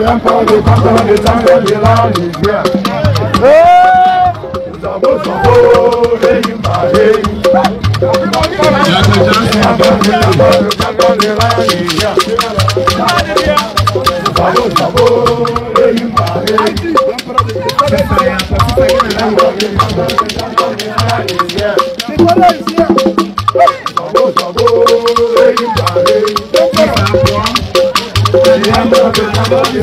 Viens pour des cantons, des tangues, de la lumière. Zambo Zambo, les Yimbaye. Zambo Zambo, les Yimbaye. Thank you.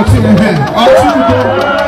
ọtí ẹhẹ ọtí gbogbo.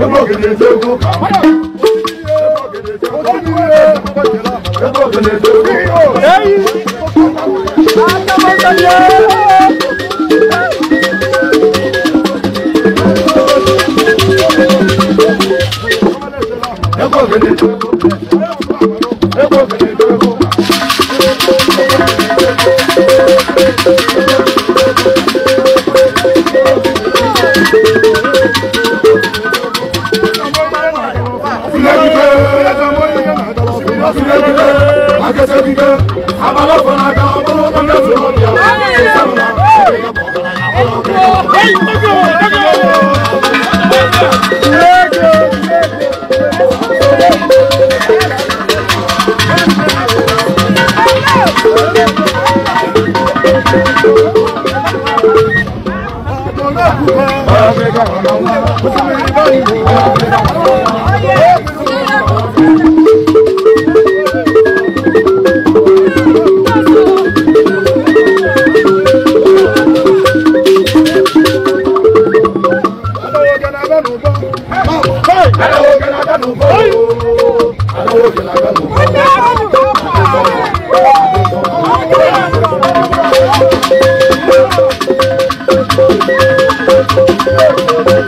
nígbà gèdè Hello, can I get no boy? Hello, can I get no boy?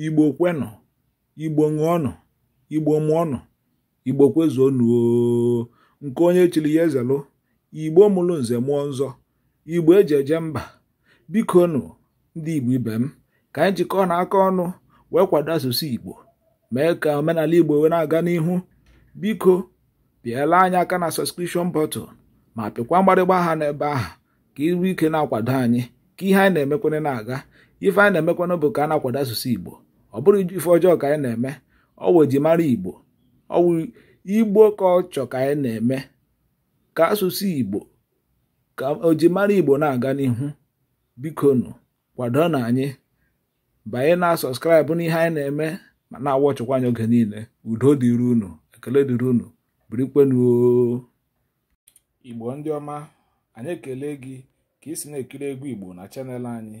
igbo kwenụ igbo ṅụọnụ igbo mụọnụ igbo kwezuonụ nke onye chiri ya ezelụ igbo mụrụ nze mụọ nzọ igbo eji eje mba biko nụ ndị igbo ibe m ka anyị jikọọ na aka ọnụ wee kwado asụsụ igbo mee ka omenala igbo wee na-aga n'ihu biko pịala anyị aka na sọskripshọn bọtụl ma pịkwa mgbarịgba aha n'ebe ahụ ka iru ike na-akwado anyị ka ihe anyị na-emekwere na-aga ife anyị na-emekwanụ bụ ka a na-akwado asụsụ igbo ọ bụrụ ife ọjọọ ka anyị na-eme ọwụ ji igbo ọwụ igbo ka ọ chọ ka anyị na-eme ka asụsụ igbo ka ojimara igbo na-aga n'ihu bikonu kwado na anyị banye na sọskraịbụ n'ihe anyị na-eme ma na-awọ ọchụkwa anyị oge niile udo dịrị unu ekele dịrị unu birikwenuo igbo ndị ọma anyị ekele gị ka ị si na-ekiri egwu igbo na chanel anyị